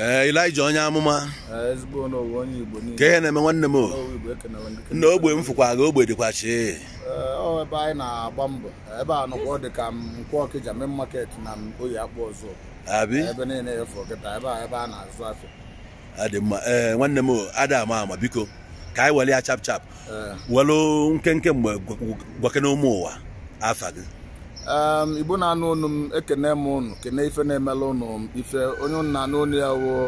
Eh, Elijah onye amụma eh, ka ihe na-eme nwanne m na ogbe m fụkwa gị, ogbe dịkwa chi eh, na-agba mbọ ebe a ka market na oyi ebe niile ebe a na-azụ ee nwanne m ada ama ama biko ka anyị were ya chap chap welu nkenke mgbe gwakena ụmụ ụwa afa gị igbo na-anụ ụnụ m ekene m ụnụ kene ife na-emela ụnụ ife onye nna na ya woo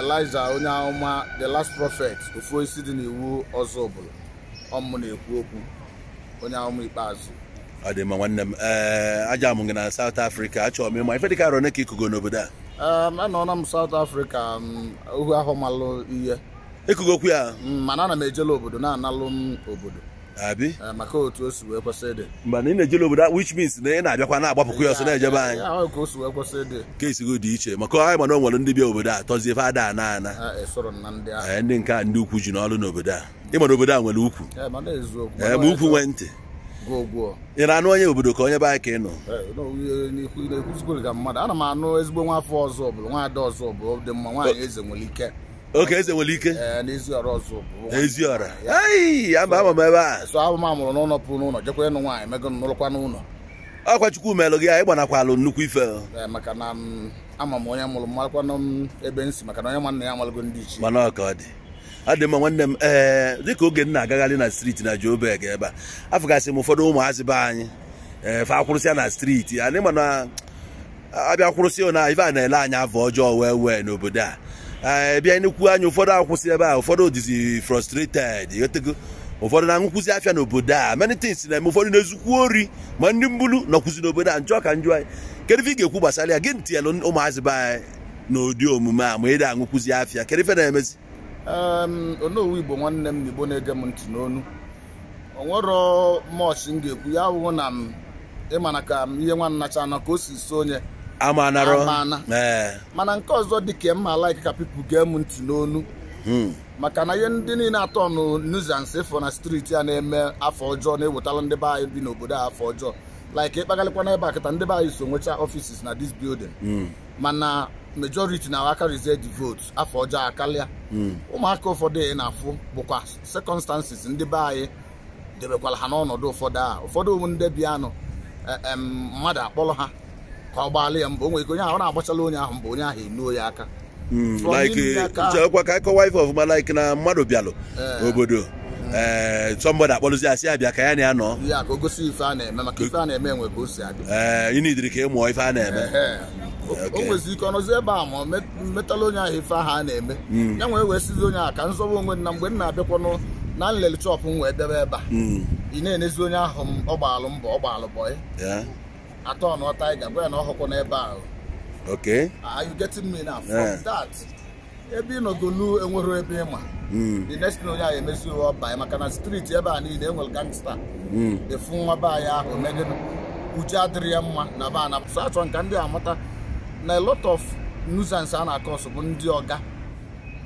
eliza onye ahụma the last prophet ofu isi dị n'iwu ọzọ ọbụla ọmụ na-ekwu okwu onye ahụma ikpeazụ ọ dị mma nwanne m aja m gị na South Afrịka achọrọ m ịma ife dị dịka arọ ka ikugo n'obodo a anọọla m South Africa ohu ahụ malụ ihe Ikugo okwu ya mm, mana ana m ejela obodo na-analụ m obodo Ah, maka otu o si wee kwesị dị mgbe na ị na-ejele obodo which means na ị na-abịakwa na-agbapụkwa ya ọsọ na-ejebe anyị ah, ah, ka o si dị iche maka anyị mana o nwere ndị bịa obodo a tọzie ife ada ana ana e eh, ndị nke a ndị ukwu ji n'ọrụ n'obodo a ị obodo a nwere ukwu eh, eh, ma ukwu nwee ntị ị na-anụ onye obodo ka onye be anyị ka ị nọ ezigbo nwa afọ ọzọ ọbụla nwa ada ọzọ ọbụla dị mma nwaanyị eze nwere ike oke eze nwere ike eh, eziọra ama ama m ebe a amụrụ n'ụlọ pụrụ n'ụlọ jekwere nụ nwaanyị mego n'ụlọkwa n'ụlọ ọkwa chukwu melụ gị anyị gbanakwalu nnukwu ife eh, maka na ama m onye mụrụ ebe m maka na onye nwanne ya amalụgo ndị ichie mana ọka dị ọ nwanne m ee eh, dịka oge m na-agagharị na striti na Joburg ebe a afụgasị m ụfọdụ ụmụazị be anyị na striti anyị mana abịa ife a na-ele anya afọ ọjọọ wee wee n'obodo a ebi eh, anyị n'ekwu anya ụfọdụ akwụsị ebe a ụfọdụ dizi frustrated etego ụfọdụ na-aṅụkwụzi afịa n'obodo a many things na-eme ụfọdụ na-ezukwu ori ma ndị mbulu nọkwụzi n'obodo a njọ ka njọ anyị kedu ife ị ga-ekwu gbasara ya gị ntinyelụ ụmụazị be anyị n'ụdị omume a ma ị da aṅụkwụzi afịa kedu ife na-emezi onowu igbo nwanne m n'igbo na-ege m ntị n'onu onwero mọchị m ga-ekwu ya abụghị na m ịmana ka m ihe nwa nnacha ka o si so onye amaana mana nke ọzọ dị ka mma like ka pipu gee m ntị n'onu hmm. maka na ihe ndị niile atọ nụ nuisance fọ na striti a na-eme afọ ọjọọ na-ewetala ndị be anyị bi n'obodo a afọ ọjọọ like ịkpagalịkwa ebe akịta ndị be anyị so nwecha offices na dis building hmm. mana majority na akarizie the vote afọ ọjọọ akarịa hmm. ụmụaka ụfọdụ ị na-afụ bụkwa circumstances ndị be anyị debekwara ha n'ọnọdụ ụfọdụ a ụfọdụ ndị bi anụ e, mmadụ akpọrọ ha kwa ọ gbalị ya mbụ o nwere ike onye ahụ na-agbachala onye ahụ mbụ onye ahụ enuo ya aka hmm, likwa ka ịkọwa ife ọfụma like na mmadụ bịalụ eh. obodo hmm. ee eh, somebody asị abịa ka ya na ya nọ ịnidiri ka ị ife a na-eme o eh, nwezi ike ọnọzi ebe a ma metala onye ahụ ife ahụ a na-eme hmm. ya nwee wee sizi onye ahụ ka nzọba onwe na mgbe m na-abịakwanụ na nlele chọpụ m wee debe ebe a ị na-enezi onye ahụ mbọ bọị atọ na nọ ịga bụ ya na ọhụkwụ n'ebe ahụ okay are you getting me now from that ebe ị nọgolu enwero ebe ịma hmm. the next thing onye ahụ emezi uwe ọba anyị maka na street ebe a niile enwere gangsta hmm. efu nwa be anyị ahụ megide uche adịrị ya mma na be a na so achọrọ nka ndị amata na a lot of nuisance a na-akọsụ bụ ndị ọga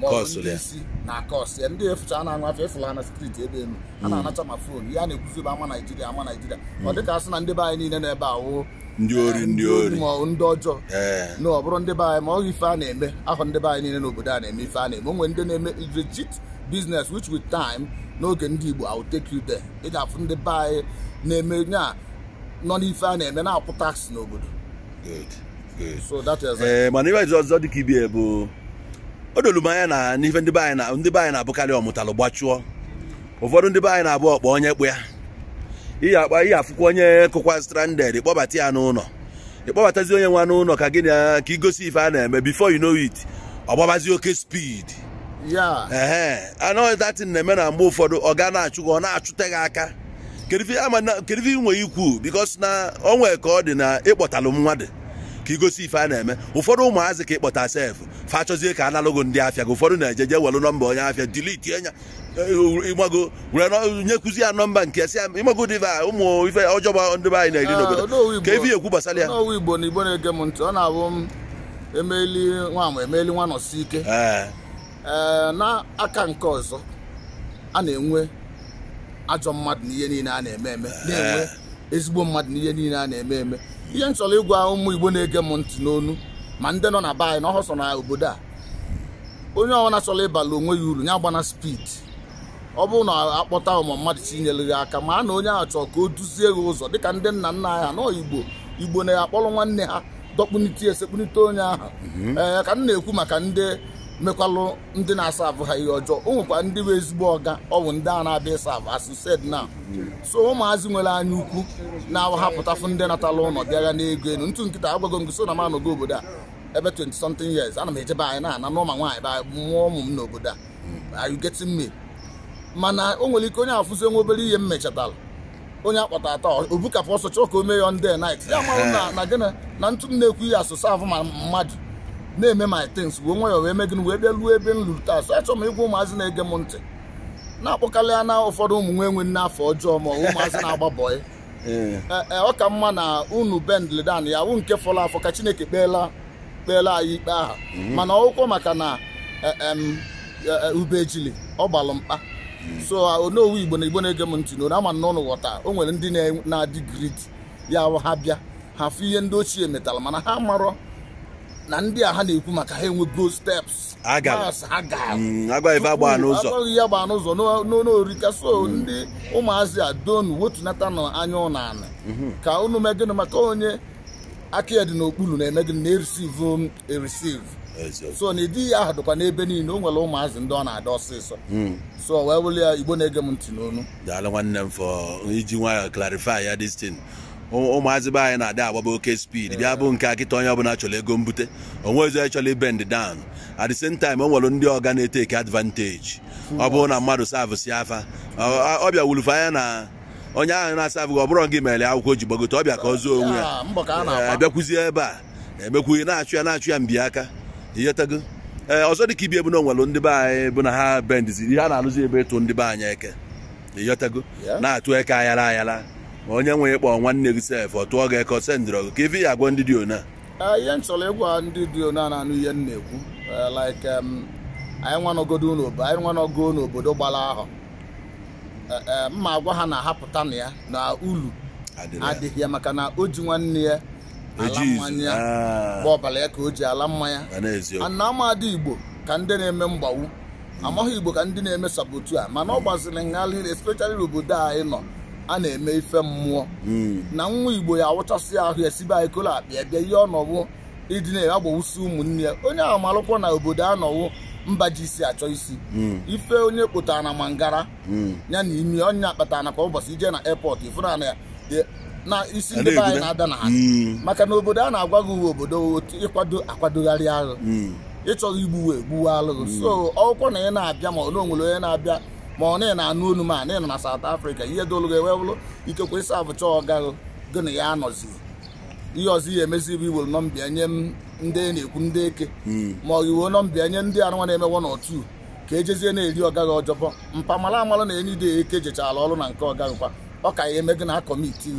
ndị isi na kọs ya ndị efucha na afọ efula na striti ebe elu a hmm. na-anacha ma fon ya na-ekwuzi ama Naijiria ama Naijiria ọ hmm. dịka asị na ndị be anyị niile na-ebe awụ ndị ori ndị ori ma ndị ọjọọ eh. na ọ bụrụ ndị be anyị ma ọ ife a na-eme ahụ ndị be anyị niile n'obodo a na-eme ife a na-eme onwe ndị na-eme legit business wich with time n'oge ndị Igbo awụ will de ị ga-afụ ndị be anyị na-eme nya nọ n'ife a na-eme na-akwụ tax n'obodo eh, mana ibe ọzọ bụ o dolu anya na n'ife ndị be anyị na ndị be anyị na-abụkarị ọmụtalụ gbachụọ ụfọdụ ndị be anyị na-abụ ọkpa onye kpụ ya ihe akpa afụkwa onye kụkwa stranded ịkpọbata ya n'ụlọ ịkpọbatazi onye nwa n'ụlọ ka gị na ka igosi ife a na-eme before you know it ọgbabazi oke speed ee anọghị na-eme na mgbe ụfọdụ ọ ga na-achụ gị ọ na-achụte gị aka kedu ife nwe ikwu because na onwe ka ọ dị na ịkpọtalụ mmadụ ka igosi ife a na-eme ụfọdụ ụmụazị ka ịkpọta sef fachọzie ka analụgo ndị afịa gị ụfọdụ na-eje je welụ nọmba onye afịa diliti enya ịgbago were nyekwuzi ya nọmba nke si ịgbago diva ụmụ ife ọjọọ ndị anyị na-eri ah, n'obodo ka ebi ekwu gbasara ya igbo na igbo na-ege m ntị ọ na-abụ m emeli nwa m emeli nwa nọsi ike eh. eh, n'aka nke ọzọ a na-enwe ajọ mmadụ na ihe niile a na-eme eme na-enwe eh. ezigbo mmadụ n'ihe niile a na-eme eme ihe m chọrọ ịgwa ụmụ igbo na-ege m ntị n'onu ma ndị nọ na be na ọhọsọ na obodo a onye ọbụla chọrọ ịbala onwe ya uru ya gbana spid ọ bụrụ na akpọta ụmụ mmadụ chinyere gị aka ma a na onye ahụ chọrọ ka o duzie gị ụzọ dịka ndị nna nna anyị ha nọọ igbo igbo na-akpọrọ nwanne ha dọkpunite esekpunite onye ahụ mhm. ee ka m na-ekwu maka ndị mekwalụ ndị na-asa afụ ha ihe ọjọọ o nwekwa ndị bụ ezigbo ọga ọ bụ ndị a na-abịa ịsa asụsed na so ụmụazị nwere anya ukwu na-ahapụtafụ ndị natala ụlọ bịara n'ego elu ntụ nkịta agwago m so na m anọgo obodo a ebe 20 something years ana m ejebe anyị na-ana n'ụma nwaanyị ba mụọ ụmụ m n'obodo a are you getting me mana o nwere ike onye afụzi nwa obere ihe m mechatara onye akpọta atọ obukapụ ọsọ chọọ ka o mee ya ndị night ya na gịnị na ntụ m na-ekwu ihe asụsụ avụ ma mmadụ na-eme my things wee nwayọọ wee megịnụ wee bịa ruo ebe m luru taa so achọrọ m ịgwa ụmụazị na-ege m ntị na-akpọkarị ya na ụfọdụ ụmụ nwe enwe n'afọ ọjọọ ma ụmụazị na-agba ee eh, eh, ọ ka mma na unu bendledan ya wụ nke fọrọ afọ ka chineke kpeela kpeela anyị ikpe aha mhm. mana ọkwụkwọ maka na eh, ubejili ọ gbalụ mkpa mhm. so ah, onowu igbo na igbo na-ege m ntị na ama na ụnụ ghọta o nwere ndị na-adị grid ya ha bịa ha fụ ihe ndị ochie metara mana ha marọ na ndị a ha na-ekwu maka ha enwe enwego steps mm, agwaghị agba ya n'ụzọ n'orika so ndị ụmụazị a donu wetunata na anya ụnana mhm. ka unu mee maka onye aka ya dị n'okpuru na-eme gịnị na-erisivu erisiv so na ịdị ya ahụ dịkwa n'ebe niile o nwere ụmụazị ndị ọ na-ada ọsịsọ hmm. so wee wụlụ ya igbo na-ege m ntị n'onu daalụ nwanne m fọ iji nwayọ clarify ya destin ụmụazị be anyị na-adị agbaba oke speed bịa bụ nke akịta onye ọbụla chọrọ ego mbute onwezi onye chọrọ bend dan at the time o nwere ndị ọga na eke advantage ọ bụrụ na mmadụ savụsi afa ọbịa bịa wulufe anya na onye ahụ na-asavụghị ọ bụrọ gị mere akwụkwọ ji gbagote ọbịa ka ọ zuo onwe ya abịakwuzie ah, eh, ebe a emekwughị eh, na-achụ ya na-achụ ya mbi aka ee eh, ọzọ dịka ibi ebu na onwere ndị be anyị bụ na ha bendizi ihe a na-alụzi ebe ịtụ ndị be anyị eke na-atụ eke ayara ayara onye nwe ịkpọ nwanne gị sef ọ tụọ gị eko sendịrọ gị ka ife ya agwa ndị dị ona eh, ihe m chọrọ ịgwa ndị dị ona na-anụ ihe m na-ekwu eh, like anyị nwanọgodo n'obodo anyị nwanọgo n'obodo gbara ahụ eh, mma agwa ha na-ahapụta na ya na ulu adịghị ya maka na o ji nwanne ya ala mmanya ya ah. ọbara ya ka o ji ala mmanya na amadị igbo ka ndị na-eme mgbawu amaghị igbo ka ndị na-eme sabotu a mana ọ gbaziri nghalị especially n'obodo a ị nọ a na-eme ife mmụọ hmm. na nwa igbo ya awụchasị ahụ esibe anyị kolo akpịa bịa ihe ọnọwụ ịdị na-agbawusi ụmụnne ya onye ahụ na obodo anọwụ mba ji isi achọ isi hmm. ife onye kpụtara na mangara hmm. ya na imi onye akpatara na kwa ụbọchị ije na airport ifụnana na isi ndị be anyị na-ada na ha maka na obodo a na-agwa gị uwe obodo otu ịkwado akwadogharị agha ịchọghị igbuwe egbuwe alụghị so ọkwụkwọ na ya na-abịa ma ọ na onwere onye na-abịa ma ọ na na-anụ olu ma nọ na saut Africa ihe dolugo ewee bụrụ ikekwe ịsa abụcha ọgahụ gị na ya anọzi ihe ọzọ ihe emezi bụ iwere nọmbịa nye ndị na-ekwu ndị eke hmm. ma ọ iwe nọmbịa nye ndị arụnwa na-emewo n'otu ka ejezie na-eri ọgaghị ọjọbọ mpamala amala na enyi dị eke jechara ọrụ na nke ọgaghịkwa ọ ka ya na na kọmiti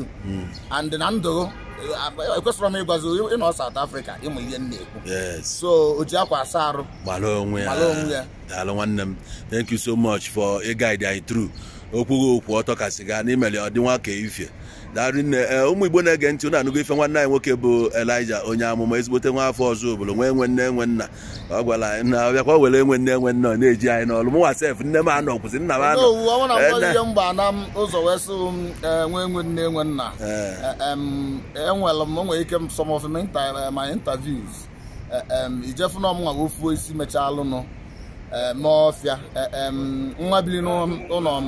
and na ndụ eh, ekwesịrọ m ịgwazi ịnọ saut afrịka ịmụ ihe m na-ekwu so o ji akwa asa arụ gbara onwe ya daalụ nwanne m thank you so much for guide anyị through okwughị okwu ọtọ kasị gaa ọ dị ka ifie daarinne ee ụmụ igbo na-ege ntị ụnụ anụgo ife nwanne anyị nwoke bụ elija onye amụma ezigbote nwa afọ ọzọ obodo nwee nwe nne nwe nna ọ gwara anyị na ọbịa ka ọ were nwe nne nwe nna ọ na-eji anyị n'ọrụ mụnwa sef nne m anọ kwụsị nna m anọ e, ụzọ enwere m nwere ike some of my interviews e, ijefuna m nwa ofuo isi mechaa alụnụ Eh, Maofia eh, nwa biri n'ụlọ m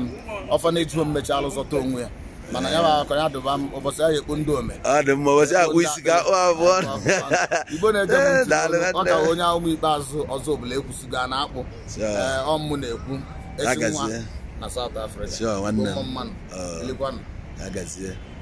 ọfaneji home mmechi alụzọta onwe ya mana ya akọ ya dụba m ụbọchị ahụ ekpu ndị ome ọ dị mma ụbọchị akpụ isi ga akpụ abụọ igbo na-eje m ọ ka onye ụmụ ikpeazụ ọzọ ọbụla ekwusigo a na-akpụ eh, ọmụ na-ekwu ezi nwa na South Africa mmanụ oh.